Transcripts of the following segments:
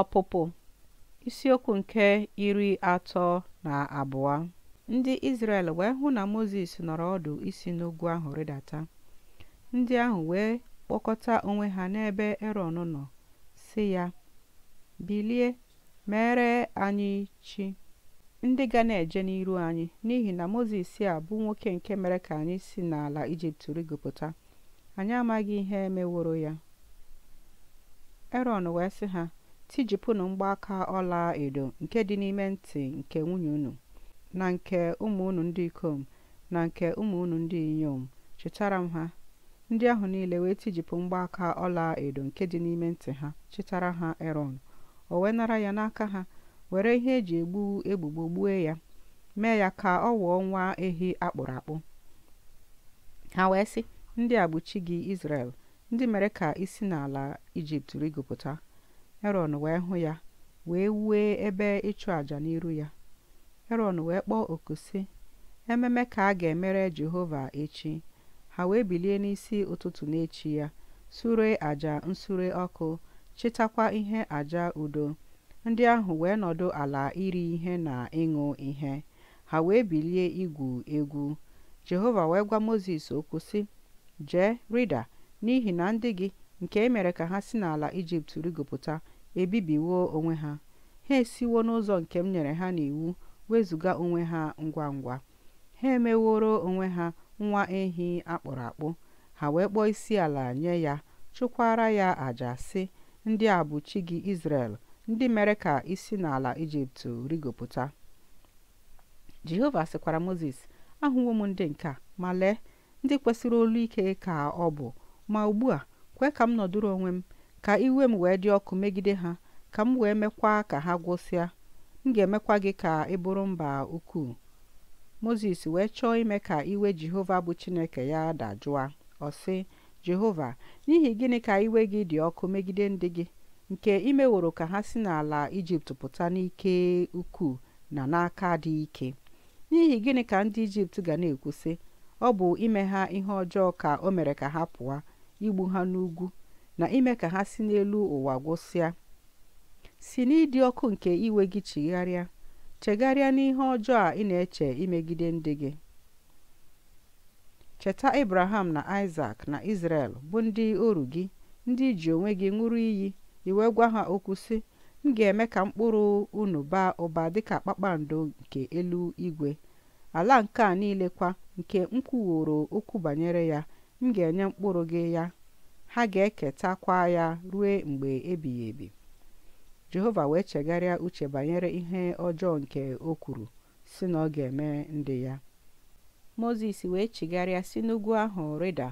Ọpụpụ isiokwu nke iri atọ na abụọ Ndị Izrel wee hụ na Mozis nọrọ ọdụ isi n'ugwu ahụ rịdata. Ndị ahụ wee kpọkọta onwe ha n'ebe Erọn nọ, sị ya, “Bilie, mere anyị chi ndị ga na-eje n'iru anyị, n'ihi na Mozis a bụ nwoke nke mere ka anyị si n'ala Ijipt rịgopụta, anyị amaghị ihe meworo ya.” Erọn wee sị ha, tijipụnụ mgbaaka ọla edo nke dị n'ime ntị nke nwunye unu na nke ụmụ unu ndị ikom na nke ụmụ unu ndị inyom chetaara m ha ndị ahụ niile wee tijipụ mgbaaka ọla edo nke dị n'ime ntị ha chetaara ha erọn o wee nara ya n'aka ha were ihe eji egbu egbugbo gbue ya mee ya ka ọ wụọ nwa ehi akpụrụ akpụ ha wee sị ndị a bụ chi gị Izrel ndị mere ka i si n'ala Ijipt rigopụta Eron wee hụ ya wee wue ebe ịchụ àjà n'iru ya Eron wee kpọọ oku sị ememe ka a ga-emere Jehova echi ha wee bilie n'isi ụtụtụ n'echi ya sure àjà nsure ọkụ chịtakwa ihe àjà udo ndị ahụ wee nọdụ ala iri ihe na ịṅụ ihe ha wee bilie igwu egwu Jehova wee gwa Mozis okwu sị jee rịda n'ihi na ndị gị nke e mere ka ha si n'ala ijipt rigopụta ebibiwo onwe ha ha esiwo n'ụzọ nke m nyere ha n'iwu wezụga onwe ha ngwa ngwa ha emeworo onwe ha nwa ehi akpụrụ akpụ ha wee kpọọ isi ala nye ya chụkwara ya àjà sị ndị a bụ chi gị isrel ndị mere ka isi n'ala ijipt rigopụta jehova sịkwara moses ahụwo m ndị nke a ma lee ndị kwesịrị olu ike ka ọ bụ ma ugbu a kwe ka m nọdụrụ onwe m ka iwe m wee dị ọkụ megide ha ka m wee mekwa ka ha gwụsịa m ga-emekwa gị ka ị bụrụ mba ukwuu moses wee chọọ ime ka iwe jehova bụ chineke ya dajụa ọ sị jehova n'ihi gịnị ka iwe gị dị ọkụ megide ndị gị nke imeworo ka ha si n'ala ijipt pụta n'ike ukwuu na n'aka dị ike n'ihi gịnị ka ndị ijipt ga na ekwusị ọ bụ ime ha ihe ọjọọ ka o mere ka ha pụọ igbu ha n'ugwu na ime ka ha si n'elu ụwa gwụsịa si n'ịdị ọkụ nke iwe gị chigharịa chegharịa n'ihe ọjọọ a ị na-eche imegide ndị gị cheta ibraham na Isaac na Israel bụ ndị oru gị ndị ji onwe gị ṅụrụ iyi iwe gwa ha okwu sị m ga-eme ka mkpụrụ unu baa ụba dịka kpakpando nke elu igwe ala nke a niile kwa nke m kwuworo okwu banyere ya m ga-enye mkpụrụ gị ya ha ga-eketakwa ya ruo mgbe ebighị ebi jehova wee chegharịa uche banyere ihe ọjọọ nke o kwuru si na ọ ga-eme ndị ya moses wee chigharịa si n'ugwu ahụ rịda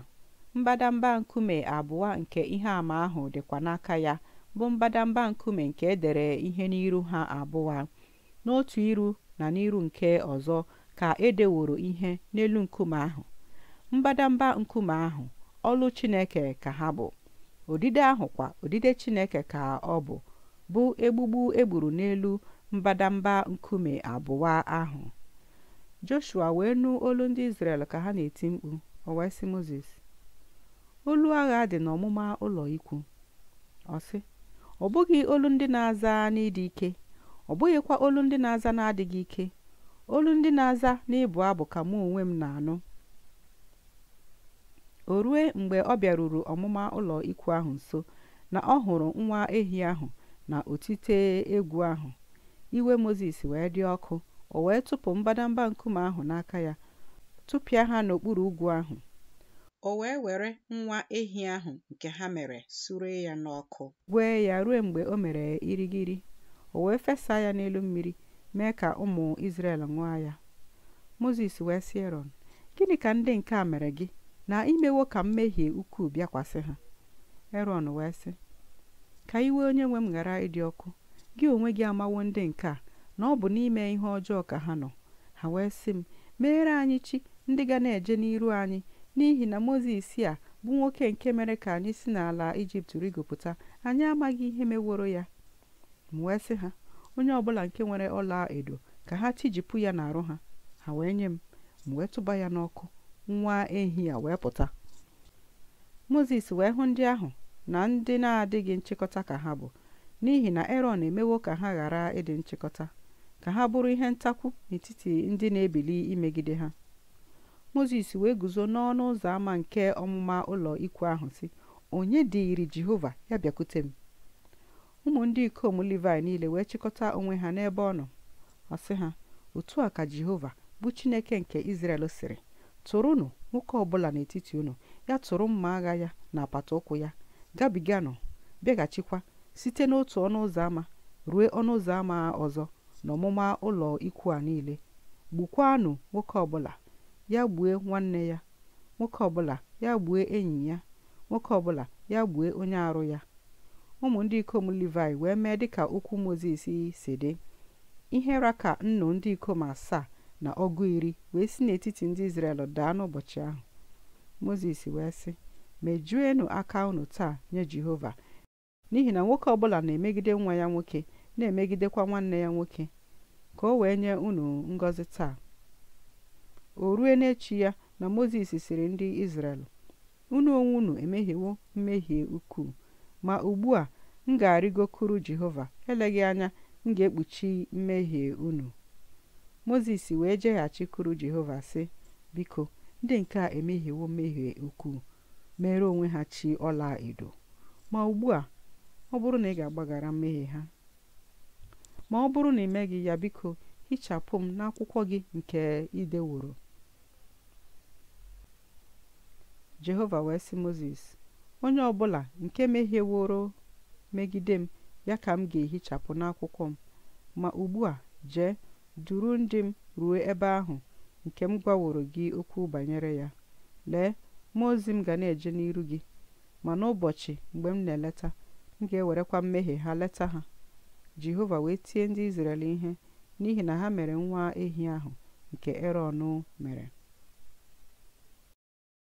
mbadamba nkume abụọ nke ihe àmà ahụ dịkwa n'aka ya bụ mbadamba nkume nke edere ihe n'iru ha abụọ n'otu iru na n'iru nke ọzọ ka edeworo ihe n'elu nkume ahụ mbadamba nkume ahụ ọlụ chineke ka ha bụ odide ahụ kwa odide chineke ka ọ bụ bụ egbugbu egburu n'elu mbadamba nkume abụọ ahụ joshua wee nụ olu ndị israel ka ha na-eti mkpu o wee moses olu agha dị n'ọmụma ụlọ ikwu ọsị ọ bụghị olu ndị na-aza n'ịdị ike ọ bụghịkwa olu ndị na-aza na-adịghị ike olu ndị na-aza n'ịbụ abụ ka mụ onwe m na-anụ o rue mgbe ọ bịaruru ọmụma ụlọ ikwu ahụ nso na ọ hụrụ nwa ehi ahụ na otite egwu ahụ iwe moses wee dị ọkụ o wee tụpụ mbadamba nkume ahụ n'aka ya tụpịa ha n'okpuru ugwu ahụ o wee were nwa ehi ahụ nke ha mere sure ya n'ọkụ gwee ya ruo mgbe o mere irigiri o wee fesa ya n'elu mmiri mee ka ụmụ Izrel ṅụọ ya Moses wee sị gịnị ka ndị nke a mere gị na imewo ka mmehie ukwuu bịakwasị ha erọn wee sị ka iwe onye nwe m ghara ịdị ọkụ gị onwe gị amawo ndị nke a na ọ bụ n'ime ihe ọjọọ ka ha nọ ha wee sị m meere anyị chi ndị ga na-eje n'iru anyị n'ihi na mozis a bụ nwoke nke mere ka anyị si n'ala ijipt rigopụta anyị amaghị ihe meworo ya m wee sị ha onye ọbụla nke nwere ọla edo ka ha tijipụ ya n'arụ ha ha wee nye m m wee tụba ya n'ọkụ nwa ehi a wee pụta moses wee hụ ndị ahụ na ndị na-adịghị nchịkọta ka ha bụ n'ihi na eron emewo ka ha ghara ịdị nchịkọta ka ha bụrụ ihe ntakwu n'etiti ndị na-ebili imegide ha moses wee guzo n'ọnụ ụzọ ámá nke ọmụma ụlọ ikwu ahụ si onye dịiri jehova ya bịakwute m ụmụ ndị ikom livi niile wee chịkọta onwe ha n'ebe ọ nọ ọ sị ha otu a ka jehova bụ chineke nke izrel sịrị tụrụnụ nwoke ọbụla n'etiti unu ya tụrụ mma agha ya na apata ụkwụ ya gabiganụ bịaghachikwa site n'otu ọnụ ụzọ ámá rue ọnụ ụzọ ámá ọzọ n'ọmụma ụlọ ikwu a niile gbukwaanụ nwoke ọbụla ya gbue nwanne ya nwoke ọbụla ya gbue enyi ya nwoke ọbụla ya gbue onye arụ ya ụmụ ndị ikom livai wee mee dịka okwu Mozis si dị ihe raka nnụ ndị ikom asaa na ọgụ iri wee si n'etiti ndị Izrel daa n'ụbọchị ahụ moses wee sị mejuenụ aka unu taa nye Jehova n'ihi na nwoke ọbụla na-emegide nwa ya nwoke na-emegidekwa nwanne ya nwoke ka o wee nye unu ngọzi taa o rue n'echi ya na moses siri ndị Izrel unu onwe unu emehiewo mmehie ukwuu ma ugbu a m ga kuru Jehova eleghị anya m ga-ekpuchi mmehie unu moses wee jeghachikwuru jehova si biko ndị nke a emehiewo mmehie ukwuu mere onwe ha chi ọla edo ma ugbu a ọ bụrụ na ị ga-agbaghara mmehie ha ma ọ bụrụ na ị meghị ya biko hichapụ m n'akwụkwọ gị nke ideworo jehova wee sị moses onye ọbụla nke mehieworo megide m ya ka m ga-ehichapụ n'akwụkwọ m ma ugbu a jee duru ndị m ruo ebe ahụ nke m gwaworo gị okwu banyere ya lee mmụọ ozi m ga na-eje n'iru gị ma n'ụbọchị mgbe m na-eleta m ga-ewerekwa mmehie ha leta ha jehova wee tie ndị izrel ihe n'ihi na ha mere nwa ehi ahụ nke erọn mere